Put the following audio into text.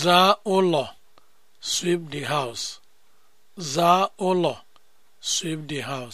zaa ụlọ sweep the house zaa ụlọ sweep the house